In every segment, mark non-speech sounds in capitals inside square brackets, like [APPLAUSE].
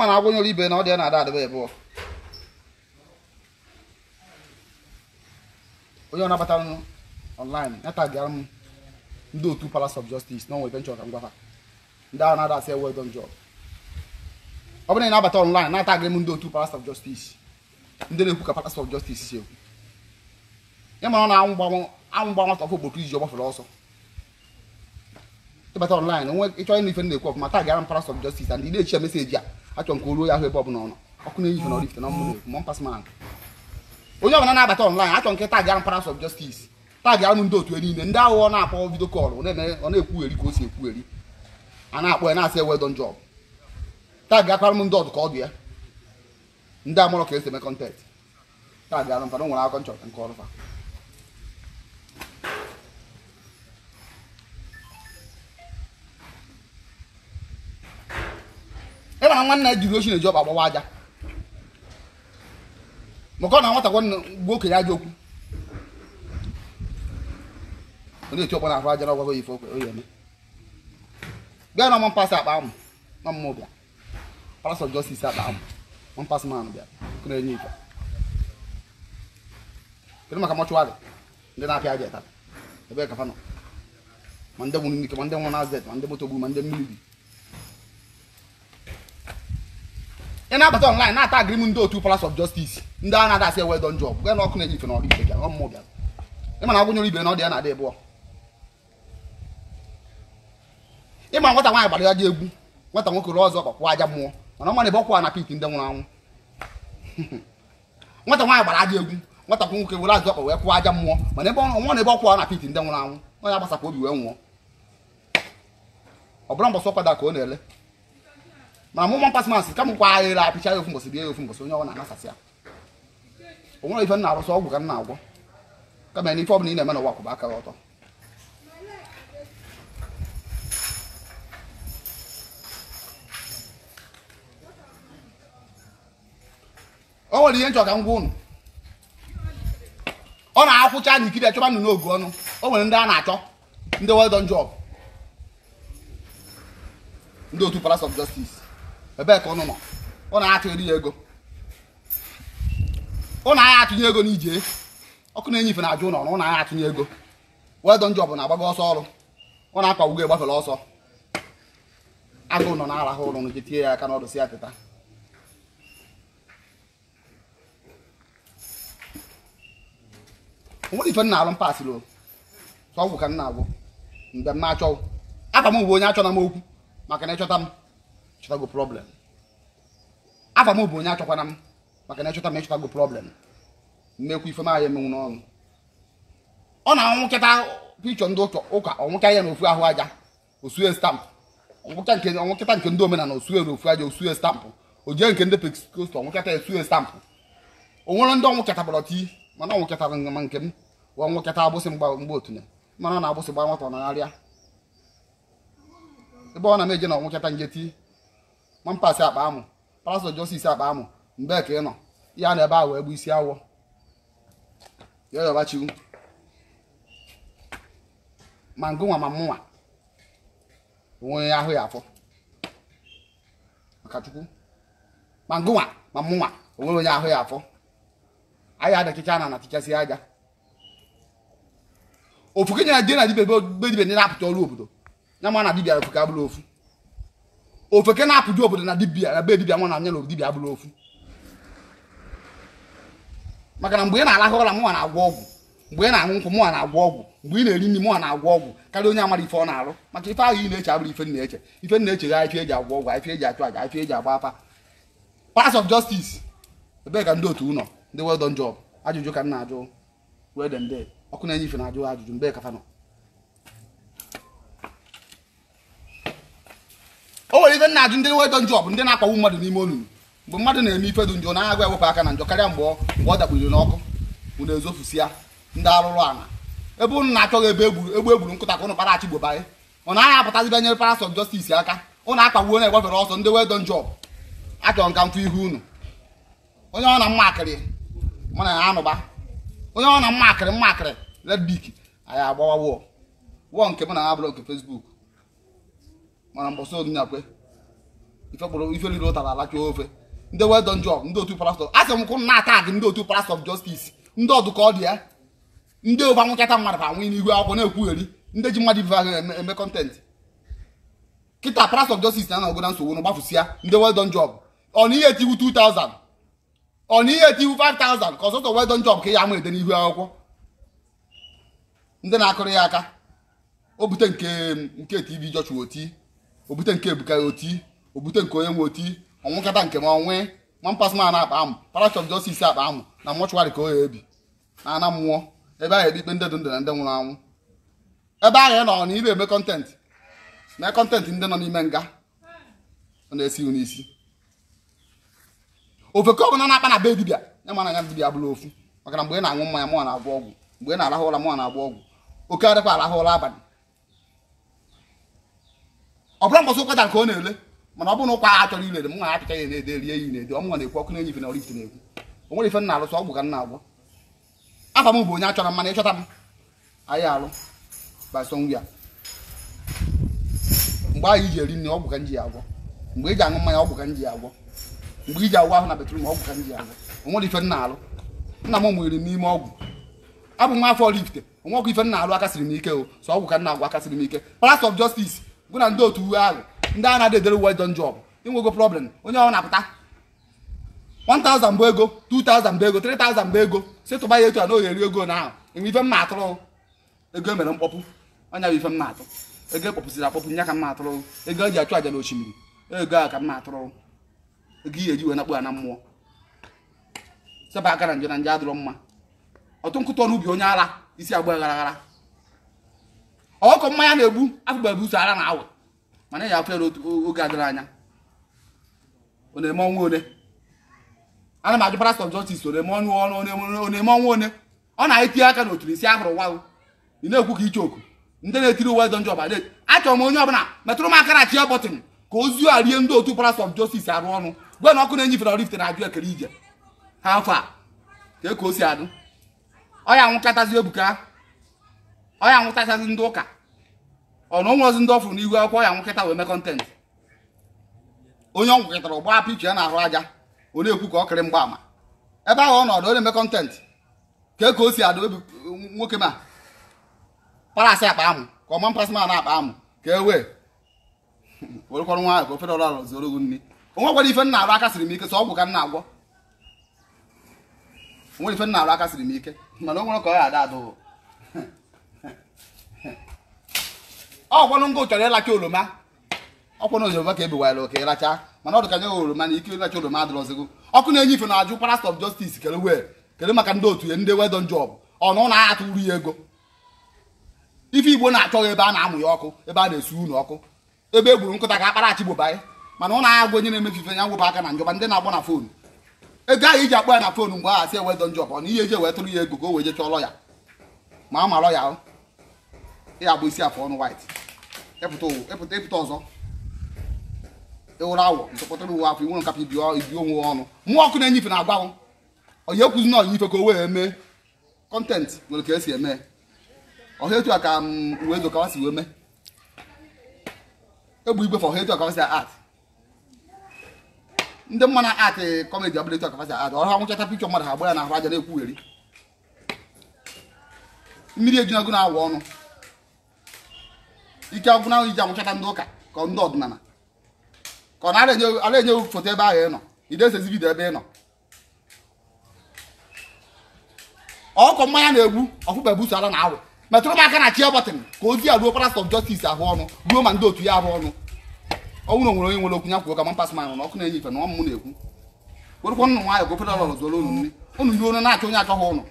ma na agwọ nyere ibe na ọ dị na-ada adịba ebụọ onye ọ nabatara m online natagara m ndị otu palace of justice na onwe benchọ ka m gwafa ndị ahụ na-ada asị well done job ọ bụrụ na ị na-abata online na-atagarị m ndị otu palace of justice ndị na-ekwu ka palace of justice si ekwu ịmara na anwụ gba nwata ọkụ gbotu iji ọgbafere ọsọ ịbata online nwe ịchọ ịnụ ife na-ekwu ọfụma taa gara m palace of justice and ị na-echi meseji a achọ nke olu ya ahụ ebe ọbụla ọ nọ ọkụ na-eyife na ọrifite na ọmụmụ mọ mpas man onye ọbụla na-abata ọnlaịn achọ nke tag arụ paras of justice tag arụ ndị otu niile ndị aghụghọ na-akpọ vidio kọlụ ọ na-ekwugheri ka o si ekwugheri a na-akpọ ya na-asị ewe don job tag akwara m ndị ọdụ ka ọ dị ya ndị amụrụ ka esi eme kọntent tag arụ mfana o nwere akọ nchọta nke ọrụfa na nwanna jiri ochi na-eji ọba agbawa aja maka ọ na nwata gwa gwa okenye aja okwu onye eti ọkpọ na ahụ aja na ọgwago ife okwe oyi bịa na ọma akpa amụ na mmụọ bịa palas of justice akpa amụ ọma mpasị bịa kụna enye ife kedu maka mọchụwarị ndị na-apịa aja ebe kafa nọ ma ndị nwụrụ n'ike ma ndị nwụrụ na azet ma ndị moto gburu ma ndị mmiri ị na-abata ọnlaịn na-ata agrim ndị otu Palace of Justice ndị a na-adasị ewe don job gwa na ọkụ na-eji na ọrụ ibe bịara bịara agwụnyere ibe na ọ ya na adị ịbụọ ịma nwata nwaanyị gbara ya dị egwu nwata nwoke rụọ ọzọ kpakwa aja mmụọ mana ọmana ebe ọkwa na mana ebe ọnwa na ebe ọkwa na ndị nwụrụ anwụ onye [LAUGHS] gbasakwa obi wee nwụọ ọ bụrụ ka ọ na-ele mana mụ mụmụ mpasị masị ka m kwa agha ere apịcha ya ofu mbọsị bie ya ofu mbọsị onye ọ na-anasasị ya o nwere ife m na-arụsị ọgwụ ka m na-agwọ kama na ife ọbụla ị na-eme na n'ụwa kwụba aka ọtọ o nwere ihe nchọ ka m gwa unu ọ na-akwụcha na ikiri achọba nnụnụ ogu ọnụ o nwere ndị a na-achọ ndị well done job ndị otu Palace of Justice ebe ka ụnụ nọ ụnụ atụ eri ya ego ụnụ anya atụnye ego na ije ọkụ na-enye ife na-ajụ ụnọ na ụnụ atụnye ego wedọ njọ bụ na agbago ọsọ ọrụ ụnụ akpagbugo egbafere ọsọ agụụ nọ na-arahụ ụrụ nụ tie ya aka n'ọdụ si atịta teta onwere ife nna alụ mpasịrị ọgwụ ka m na-agwụ mgbe m na-achọ aka m bụ onye achọna m okwu maka na ịchọta m chọtago problem afa m bụ onye achọkwana m maka na echọta m echọtago problem mmekwa ife m ahịa emenwu n'ọnụ ọ na-anwụ nkịta pichọ ndị ụka ọnwụka ya na ofu ahụ aja osue stampụ ọnwụkịta nke ndị omenana osue na ofu aja osue stampụ ojie nke ndị pekost ọnwụkịta esue stampụ onwere ndị ọnwụ kịtabara tii mana ọnwụ kịtara ma nke m ọnwụ kịta agbụsị mgbe otunye mana ọ na-agbụsị gba nwata ọ ebe ọ na m eje na ọnwụ kịta nje mampasị akpa amụ parasol jọsis akpa amụ mgbe ka ị nọ ya na ebe a wee gbu isi awọ yoyobachiwu ma ngụnwa ma mụnwa onwe ahụ ya afọ maka chukwu ma ngụnwa ma mụnwa onwe onye ahụ ya afọ anyị adachicha na anatichasị aja ofu kenye na dibia na dibia be dibia ndị na-apụta ọrụ obodo ya ma na dibia ofu ka ofu ofeke na-apụju obodo na dibia na be dibia nwa na anya na dibia abụrụ ofu maka na mgbe ị na-alahụ ụra mụnwa na-agwọ ọgwụ mgbe ị na-aṅụ nkwụ mụnwa na-agwọ ọgwụ mgbe ị na-eri nri mụnwa na-agwọ ọgwụ karịa onye amara ife ọ na-arụ maka ife ahụ ị na-eche abụrụ ife na-eche ife na-eche ga ife eji agwọ ọgwụ ife eji achụ aja ife eji agba afa pass of justice ebee ka ndị otu ụlọ ndị well done job ajụjụ ka m na-ajụ wee dị ọkụ na-enye ife na-ajụ ajụjụ mgbe ka o nwere ife na-ajụ ndị wedọ njọ bụ ndị na-akpagbu mmadụ n'ime olulu mgbe mmadụ na-eme ife dị njọ na-agwa ewepụ aka na njọ karịa mgbe mgbe ọ dakpụriri n'ọkụ unu ezofusia ndị arụrụ ana ebe unu na-achọghị ebe egbu egburu nkụta ka ụnụ para achịgbobanye ọ naghị apụtazi banyere parasọ jọstisi aka ụnụ akpagbuo na-egbafere ọsọ ndị wedọ njọ achọrọ nka mfụ ihu unu onye ọ na mma akịrị mana ya anụba onye ọ na mma akịrị mma akịrị ledbik anyị agbawa wọọ wọọ nke mụ na ya bụrụ nke fesbuk mana mbọsị onyinakwe ife kpọrọ ife riri ụtara alacha ofe ndị wedon jọb ndị otu pastọ asị m kwụ na ata ndị otu pastọ jọstis ndị ọdụka ọ dị ya ndị ụba nwụchata mmadụ ka anwụ n'ihu akwụkwọ na-ekwugheri ndị ji mmadụ ibe ahụ eme kọntentị kịta pastọ jọstis na anọgo na nsogbu na gbafụsịa ndị wedon jọb ọ na ihe etiwu 2000 ọ na ihe etiwu 5000 ka ọsọsọ wedon jọb ka ya ama ede n'ihu akwụkwọ ndị na-akụrụ ya aka o bute nke nke tv jọchụ oti obute nke ebuka ya oti obute nke onye nwe oti ọnwụkata nke m onwe ma mpasma akpa amụ parash of justice akpa amụ na mọchụwarị ka o ya ebi na ana mmụọ ebe ahụ ekpe ndị dị ndụ na ndị nwụrụ anwụ ebe ahụ nọ na ị na-eme kọntentị na kọntentị ndị nọ n'ime nga ọ na-esi n'isi ofe ka ọ bụla na-akpa na be dibịa ya mana ya dibịa bụrụ ofu maka na mgbe ị na-aṅụ mmanya mụọ na-agwọ ọgwụ mgbe ị na-arahụ ụra mụọ na-agwọ ọgwụ oke arịkwa arahụ ụra abalị ọ bụrụ mgbọsị nke ọ na-ele mana ọ bụrụ na ụkwa ha chọrọ ilere m nwa na-ede rie ya na-ede ọmụnwa na-ekwu ọkụ na enyi ife na ọrụ na o nwere ife ka nna agwọ m bụ onye achọrọ mana ịchọta m anyị alụ basọngwia mgbe anyị ji eri nri ọgwụ ka nji ya agwọ mgbe iji e aṅụ mmanya ka nji ya agwọ mgbe iji agwọ ahụ na betrum ka nji ya agwọ o ife nna m n'ime ọgwụ abụ m afọ ọkụ ife alụ akasịrị m ike o ọgwụ ka agwọ akasịrị ike palace of justice gụ na ndị otu uwe ahụ ndị a na-adedere uwe dọ njọ bụ inwego problem onye ọ na-apụta 1000 bụ ego 2000 bụ ego 3000 bụ ego si tụba ya etu a na oghere ego na ahụ enwe ife mma atụrụ ego e mere mkpọpụ anya bụ ife mma atụ ego ekpọpụsịrị akpọpụ nya ka mma atụrụ ego eji achụ aja n'osimiri ego a ka mma atụrụ ego ihe eji wee nakpụ ya na mmụọ seba aka na njọ na nje adịrọ mma ọtụ nkụtụ ọnụ ubi onye ara isi agba aghara. ọkọ mmanya na-egbu afụgbabu ụzọ ara na-awụ mana ya afụ ya n'oge adịrị anya ọ one ana m ajụ pastọ jọstis ọ na-eme ọnụ ọnụ ọ na-eme ọnwa one ọ na-etinye aka n'oturu isi ahụrụ nwa ị na-ekwu ka iche oku ndị na-etiri uwe dọnjọ ọba achọrọ m onye ọbụla metụrụ m aka na chia bọtịn ka ozu a rie ndị otu pastọ jọstis arụ ọnụ gwe na ọkụ na-enyifere rift na-ajụ ekele ije ha afọ a ka e ka o si adụ ọ ya nwụkatazi ebuka ọ ya nwụtachazi ndị ụka ọ na onwe ozi ndị ọfụrụ n'ihu akwụkwọ ya nwụkịta wee mee kọntent onye ọ ụgba gbaa picha ya na-ahụ aja ọ na-ekwu ka ọ kịrị mgba ama ebe ahụ ọ nọdụ ọ na-eme kọntent ka o si adụ nwoke ma parasị akpa amụ ka ma na-akpa amụ ka e wee [LAUGHS] werekọrọ nwa ka ofere ọrụ zoro gị ife arụ aka siri m ike so ọgwụ ka nna agwọ onwere ife ọgwanụ ngụ chọrọ ịlacha oroma ọkwanụ ozioba ka ebewaala oke ịlacha mana ọ dị ka oroma na ike ịlacha oroma adịrọzigo ọkụ na-enye ife na-ajụ parasite of justice kere wee kere maka ndị otu ya ndị wedon job ọnụ na-atụ uru ya ego ife igbo na-achọghị ebe a na-amụ ya ọkụ ebe a na esu unu ọkụ ebe e gburu nkụta ka akparachi gbobanye mana ụlọ agha onye na-emefu ife ya ngwụba aka na njọba ndị na-agba na fonu ego ahụ iji akpọ ya na fon mgbe aha si ewedo njọba ọ na ihe eji ewetụrụ ya ego ka o wee jechọọ lọya ma a ma lọya ya bụ isi afọ ọnụ white ịpụta ịpụta ọzọ ịwụrụ awọ ntụkọtara uwe afọ inwere nkapa ibi onwe ọnụ mmụọ ọkụ na-enyife na agwanwụ onye ekwuzi na onye ife ka o wee mee kọntentị nwere ka esi eme ọha etu a ka mm, uwe edo kawa si wee mee egbu igwe fọha etu a kawa si art ndị mma na art kọmedi ọbụla etu a kawa si art ọrụ ha nwụchata pikchọ mmadụ ha ya na ahụ aja na-ekwugheri mmiri ejunago na-awụ ọnụ ike ọgwụ ahụ iji anwụchata ndị ụka ka ndị ọdịnala ka ọ na-enye foto ebe ahụ ịnọ nọ idesezi vidio ebe ịnọ ọkụ mmanya na-egbu ọfụba ebuso ala na awụ metụrụ m aka na chi ọbatịn ka ozi ya ruo parasọf jọstis ahụ ọnụ ruo ma ndị otu ya ahụ ọnụ ọnwụ na nwere onye nwere okwu ya kwuo ka mampas man na ọkụ na-enye ife na ọmụ na-ekwu werụkwa nụ nwaanyị gofere ọlọrọ zuoro unu nri unu ndị unu na-achọ onye achọghị ụnụ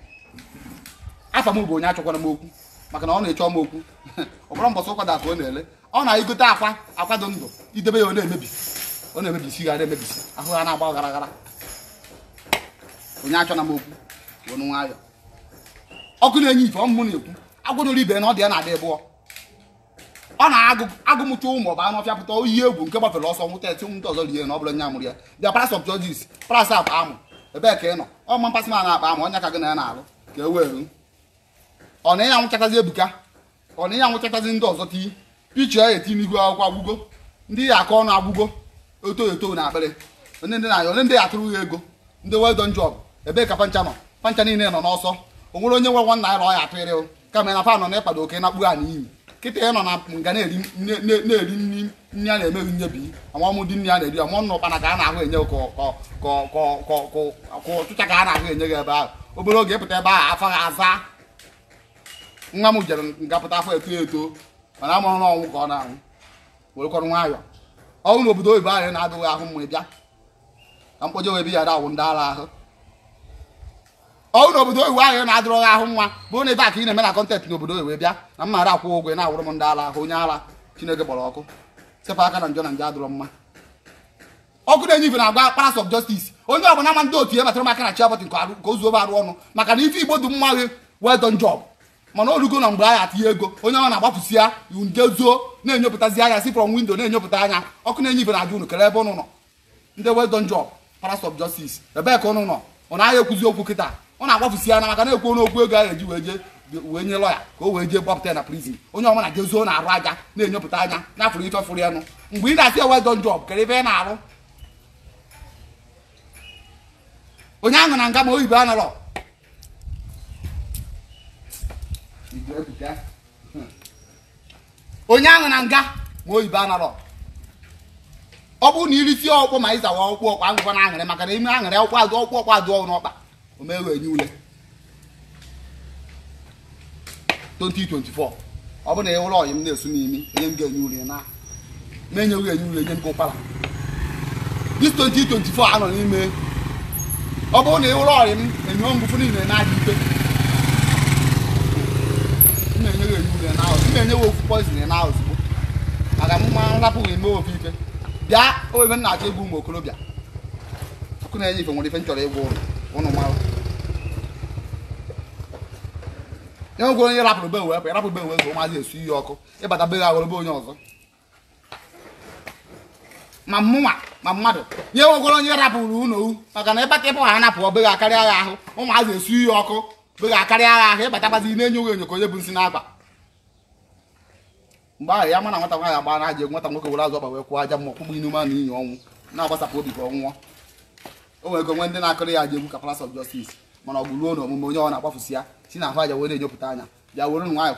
afa m bụ onye achọkwara m okwu maka na ọ na-eche m okwu [LAUGHS] ọbụrụ mbọsị ụkwada akụ ọ na-ele ọ na-egote akwa akwado ndụ idebe ya ọ na-emebi ọ na-emebisi ghara emebisi ahụ ha na-agba gara gara onye na m okwu ọnụ nwayọ ọkụ na-enye ife ọmụmụ na-ekwu agwụnụrụ ibe na ọ dị ya na-adị bụọ ọ na-agụmụcha agụ ụmụ ọba anụ ọfịa pụta egwu nke gbafere ọsọ nwụta eti nwụta ọzọ rie na ọ bụrụ nya mụrụ ya bịa paras of akpa amụ ebee ka ị nọ ọma mpasị ma na akpa amụ ọnya ka gị na ya na-alụ ka e wee ọ na ya anwụchatazi ebuka ọ na ya anwụchatazi ndị ọzọ tii picha ya eti n'ihu akwụkwọ agwụgo ndị ya aka ọnụ agwụgo oto eto na akpịrị onye ndị na-ayọ onye ndị ya atụrụ ha ego ndị well done job ebee ka pancha nọ pancha niile nọ n'ọsọ o nwere onye nwe nwa naira ọ ya atụrịrị kama na fa nọ na ịkpado oke na kpuru ha n'iyi kịta ya nọ na nga na-eri nri nri a na-emeghị nyebi amamụdị nri a na-eri amụọ nna ụkpana ka a na-ahụ enye ka ọchụcha ka a na-ahụ enye gị ebe ahụ obere oge ịpụta ebe ahụ afọ ha aza nwa m jere ngapụta afọ eto eto mana amụrụ ọnwụ ka ọ na-anwụ werekọrọ nwayọọ ọnwụ n'obodo oyibo anyị na-adịghị ahụ mma bịa ka mkpọje wee bi ya dawụ ndị ara ahụ ọnwụ n'obodo oyibo anyị na-adịrọghị ahụ nwa bụrụ na ebe a ka ị na-eme na kọntent obodo oyibo bịa na m mara akwụ ụgwọ na-awụrụ m ndị ara ahụ onye ara chineke gbọrọ ọkụ sepụ aka na njọ na njọ adịrọ mma ọkụ na-enye ife na agwa Palace of Justice onye ọbụla ama ndị otu e batara maka na chi abọtị nke ozu arụ ọnụ maka na ife igbo dị mma gị well done mana orugo na mgbe a atinye ego onye ọma na-agbapụsi ya ndezuo na-enyopụtazi anya si from windo na-enyopụta anya ọkụ na-enye ibe na ajụ unu ebe ụnụ nọ ndị wedon job paras of justice ebee ka ụnụ nọ ọ naghị ekwuzi okwu kịta ọ na-agbapụsi ya na maka na-ekwu n'okwu ego a eji wee jee wee nye lọya ka o wee jee gbapụta na prizin onye ọma na jezuo na-arụ aja na-enyopụta anya na-afụrụ ife fụrụ ya nụ mgbe ị na-asị wedon job kere ebe ị na-arụ onye ahụ na nga ma oyibo anarọ onye ahụ na nga ma oyibo anarọ ọ na na irisi ọkpụkpọ ma ịzawa ọkpụkpọ ọkpa agụkọ na aṅịrị maka na ime aṅịrị ọkpụ azụ ọkpụ ọkpụ azụ ọhụrụ ọkpa omewe enye ule 2024 ọ bụ na ịwụrụ ọyị m na-esu n'imi enye m ga-enye ule na ma enye ule m ụkpara dis 2024 anọ n'ime ọ bụrụ na ịwụrụ ọyị na-enye w ofu poizin na ozugbo maka mma nrapụghị eme ofu ife bịa obe m na-achọ ịbụ ụmụ okorobịa ọkụ na ife nwere ife nchọrọ chọrọ ụlọ ụnụ mara e nwegwe onye rapụrụ be wepụ rapụ be ụmụazị ọkụ ịbata onye ọzọ ma ma mmadụ nye onye rapụrụ ụlọ maka na ịbata ịbụ ha ọ beghị akarịa ya ahụ ụmụazị esu iyi ọkụ beghị akarịa i na mgbe ahụ ya mana nwata nwaanyị agba na-aja nwata nwoke were azụ ọgba wee kwụọ aja mmụọ kpụgbụ inu ma na ọnwụ na-agbasapụ obi ka ọ nwụọ o nwere onwe ndị na-akụrị ya aja egwu ka Palace of Justice mana ọ bụ ruo na onye ọ na-akpafusi ya si na ahụ aja wee na anya bịa were ụnụ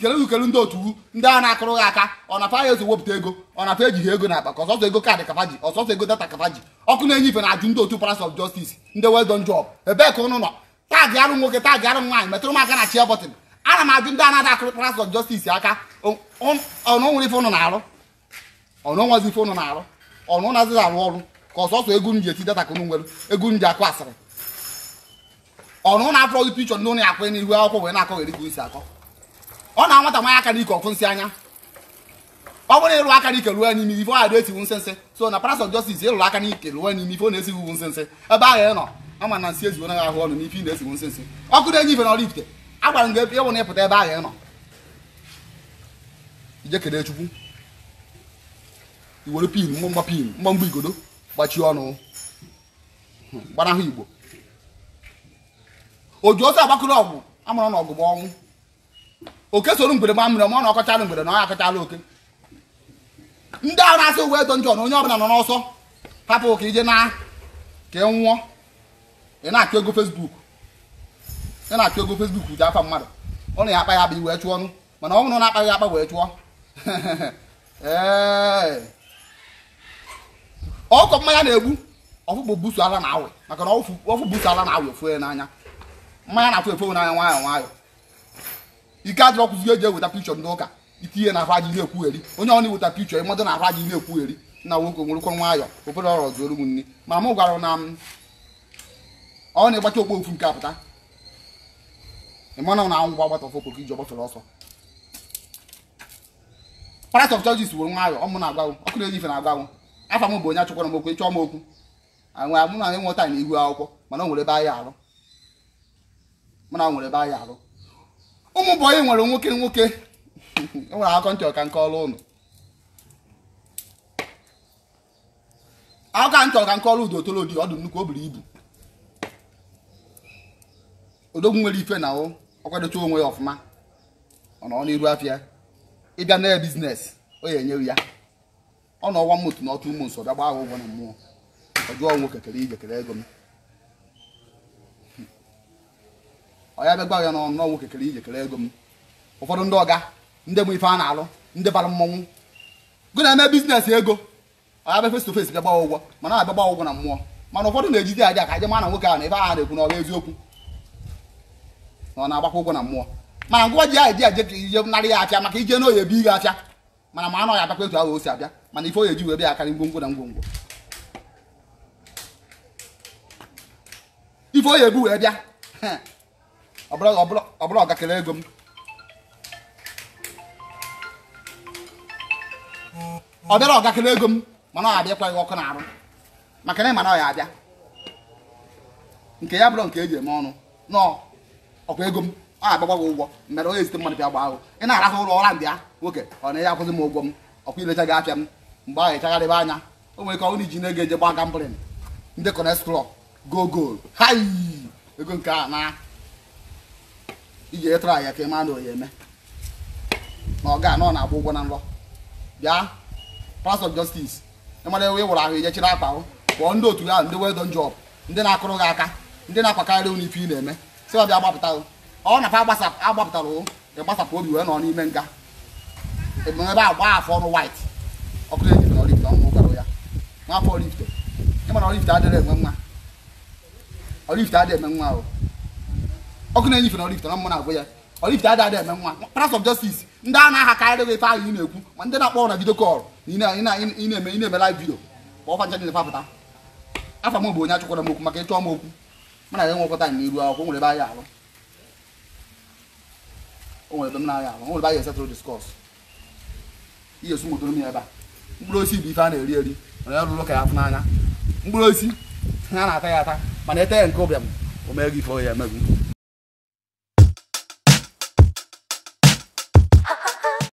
ka kere ndị otu ndị a na-akụrụ ha aka ọ na fa ya ezo wepụta ego ọ na ego na akpa ka ọsọsọ ego kaadị ọsọsọ ego data ọkụ na-enye ife na-ajụ ndị otu of ndị well ebee ka ụnụ nọ taagị arụ nwoke taagị arụ nwaanyị metụrụ m aka na chia bọtịn ana m ajụ ndị akụ akụrụkparas of justice aka ọnụnwere ife ụnụ na-arụ ọnụnwazi ife ụnụ na-arụ ọnụ nazighị arụ ọrụ ka ọsọsọ ego nji eti data ka ụnụ nwere nji akụ asịrị ọnụ na-afọ gị pichọ ndị ụnụ ya akwanye n'ihu akwụkwọ wee na-akọghịrị gị isi akọ ọ na nwata nwanyị aka n'ike ọkụ nsị anya ọ bụrụ ịrụ aka n'ike ruo n'ime ife ọ dị esiwu so na ịrụrụ aka n'ike ruo n'ime ife ọ na-esiwu nsensị ebe nọ ama na nsị eziwo ahụ ọnụ n'ife ị na-esiwu ọkụ na-enye ife na ọrụ ifite agwara m gị ebe na ịpụta ebe ahụ ị nọ ije kede chukwu iwere were pin mgbamgba pin mgbamgba igodo gbachie ọnụ gbanahụ igbo o ji ozi agbakụrụ ọgwụ amụrụ na ọgụgụ ọnwụ oke soro mgbere gba mmiri ma ọ na ọkọchala mgbere na ọ akọchala oke ndị ahụ na-asị uwe edo njọ na onye ọbụla nọ n'ọsọ hapụ ka ije na ka ị e nwụọ ị na-akụ ego fesbuk ya na-achụ ego Facebook ji afa mmadụ ọ na ya akpa ya bụ wee chụọ ọnụ mana ọ bụrụ na akpaghị akpa wee chụọ ọkọ [LAUGHS] mmanya na-egbu ọfụkpọ busu ala na awị maka na ọfụ busu ala na awị ofue n'anya mmanya na-afụ efe n'anya nwayọ nwayọ ike adịrọ kụzi eji eweta pikchọ ndị ụka itinye na afa ji na-ekwugheri onye ọ na-eweta pichọ ịmadụ na afa ji na-ekwugheri na nwoke nwerekwa nwayọ obere ọrọ zuoro m nri ma m gwara na ọ na-egbacha okpo ofu nke apụta mana na anwụ gwa agbata ọfọ ka iji ọgbafere ọsọ Palace of Judges wuru nwayọ ọmụ na-agwanwụ ọkụ na-eri ife na-agwanwụ afọ m bụ onye achọkwara m okwu chọọ m okwu anwe mụ na enwe taa na ihu akwụkwọ mana o nwere ebe anyị arụ mana ọ nwere ebe anyị arụ ụmụ bụ onye nwere nwoke nwoke enwere akọ ntị ọka nke ọrụ ụlọ akụkọ ntị ọka nke ọrụ udo otolodi nnukwu o buru ibu odogwu nwere ife na o ọ kwadocha onwe ya ọfụma ọ nọ n'iru afịa ịbịa na biznes o ya enyewu ya ọ nọ ọnwa mmụtụ na ọtụ ụmụ nso bịa gbaa ụgwọ na mmụọ ọ jụọ nwoke kere ije kere ego m ọ ya bịagwa ya n'ọnụ nwoke kere ije kere ego m ụfọdụ ndị ọga ndị mụ ife a na-alụ ndị bara mmọnwụ gụ na-eme biznes ego ọ ya bịa face to bịa gbaa ụgwọ mana abịa gbaa ụgwọ na mmụọ mana ụfọdụ na-ejizi aja ka aja ma na nwoke ahụ na ife ahụ na-ekwu na ọ bụ eziokwu na ọ na-agbakwa ụgwọ na mmụọ mana ngwa ji ahụ eji eje ije narị ya apịa maka ije na oyi ebi gị apịa mana ma anọ ya abakwa etu ahụ o si abịa mana ife oyi eji wee bịa akarị ngwongwo na ngwongwo ife oyi ebu wee bịa ọbụla ọgakere ego m ọ bịara ọgakere ego m mana ọ abịakwaghị ọkụ na arụ maka na ịma na ọ ya abịa nke ya bụrụ nke eji eme ọnụ nọọ ọkwa ego m ọ agbagba gị ụgwọ mere onye ezite mmadụ bịa gbaa ahụ ị na-arahụ ụlọ ụra ndị ya nwoke ọ na ya akwụzi m ụgwọ m ọkwa ilecha gị apịa m mgbe ahụ ịchagharịba anya o nwere ka ọ iji na-ege eje gba gambrin ndị kọnes go gol hai ego nke a na iji etara ya ka ị maa na oyi eme na ọ ga na-agba ụgwọ na nrọ bịa pas jọstis ịmara ewe wụrụ ahụ ijechiri akpa hụ kpọọ ndị otu ya ndị wedon job ndị na-akụrụ gị aka ndị na-akwakarị unu ife ị na-eme si ọ bịa gbapụta ọ na fa agbapụtara gbasapụ obi wee nọ n'ime nga ebe agba afọ ọnụ wit ọkụ na-ejibe na ọnwụ gwara ya nwafọ olift ịma olift enwe nwa olift adịghị eme nwa o ọkụ na-enyife na olift na mmụ na-agwụ ya olift eme nwa of ndị a na-aha karịrị ife ahụ ị na-ekwu ma ndị na-akpọ na vidio kọl ị na-eme live na afa m bụ onye achụkwara maka ịchọ m okwu mana ya nwekọta na iru akwụkwọ nwere ebe anyị alụ o nwere ebe m na-aya alụ nwere ebe anyị esetụrụ diskọs ihe esu nwetụrụ m ya ebe a mkpụrụ osisi bụ ife a na-eri eri mana ya lụrụ ka ya afụ n'anya mkpụrụ osisi ha na-ata ya ata mana ete ya nke ụbịam o mee gị ife o ya